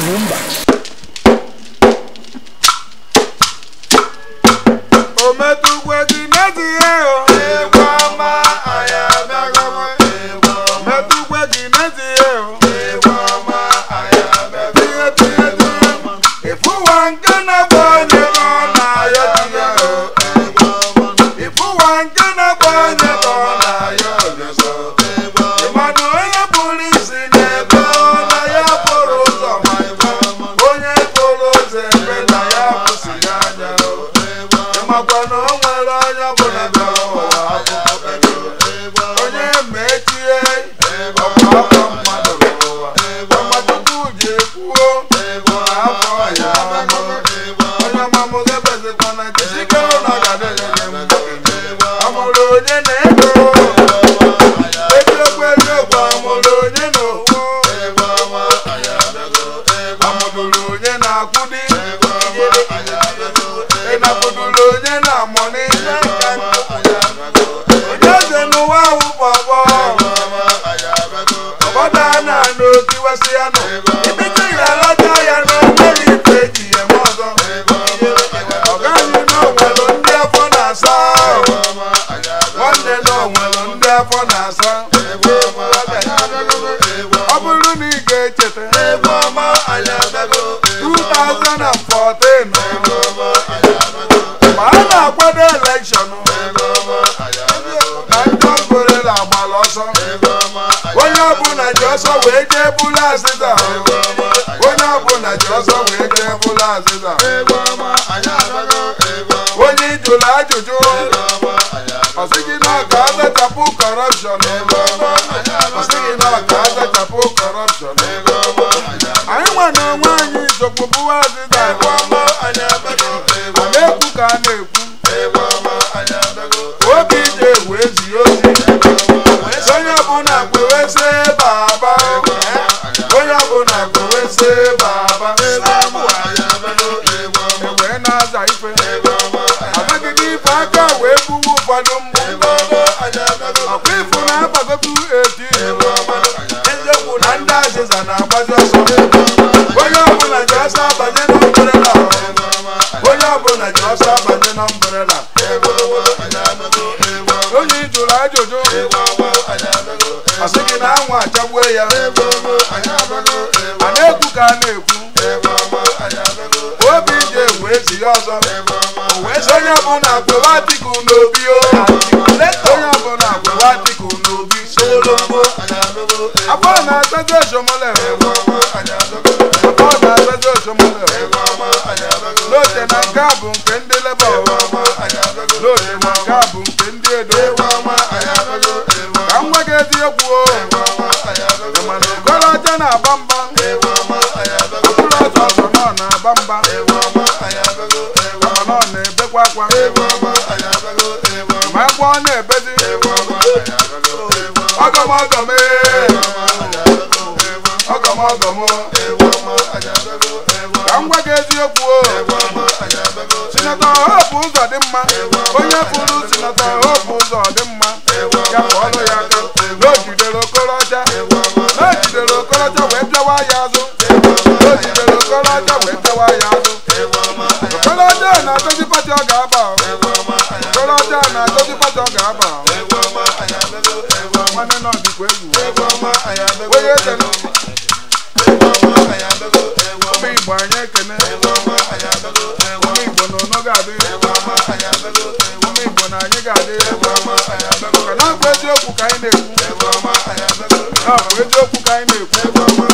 Columbus. ndị afọ na-asa ọ bụrụ na ị ga-echeta 2014 ma a na-akwado elekshọn na ndị ọgorela agbalị ọsọ onye ọbụla ji ọsọ wee onye ọbụla ji ọsọ wee jee onye ajụjụ azachapụ kọrọpshọn ọma anyị nwa nwaanyị onwe bụwa ọma na-ekwu ka a na-ekwu obi ije ewu ezighị ozi onye ọbụla kweweze baba onye ọbụla kweweze baba egwe na-aza ife gị n'ife aka wee gbuwe ụfọdụ mgbe jụrụ ajụjụ asị gị na anwụ achagbuo ya a na-ekwu ka a na-ekwu obi ji egwu ya ọzọ wee sị onye ọbụla agwụwa dịka n'obi onye ọbụla agwụwa dịka n'obi solombo abụọ na-azago ezomole Afọ na-azago ezomole N'oche na nke a bụ nke ndị leba edo nke a bụ nke ndị edo ka nwa gị ezi egwu mana okorocha na-agba mba okpuru ọzọ ọzọ na-agba mba ọ na-ebekwa akwa ma agwa ọ na-ebezi ọgọmọgọm ee ọgọmọgọm ka m gwa gị eziokwu o sinata ọha bụ ụzọ dị mma onye bụrụ sinata ọha bụ ụzọ dị mma ya bụ ọrụ ya aka na o jidere okorocha na jidere okorocha wee bịawa ya azụ na jidere okorocha wee bịawa ya azụ okorocha na-adozi pati ọ ga-aba okorocha na-adozi pati ọ ga-aba nwanne nọ dịkwa egwu onye eze ga-adị na-abụ eziokwu ka ka anyị na-ekwu